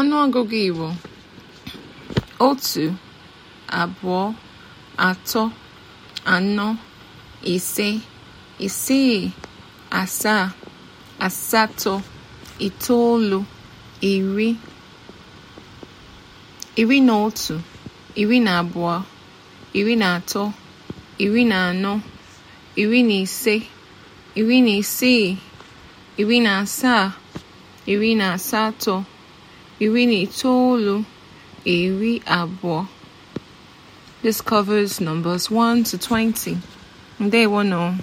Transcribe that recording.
Ọnụọgụgụ Igbo otu abụọ atọ anọ ise isii asaa asatọ itoolu iri iri na otu iri na abụọ iri na atọ iri na anọ iri na ise iri na isii iri na asaa iri na asatọ iri na itoolu iri abụọ This numbers 1 to 20. Ndeewonu.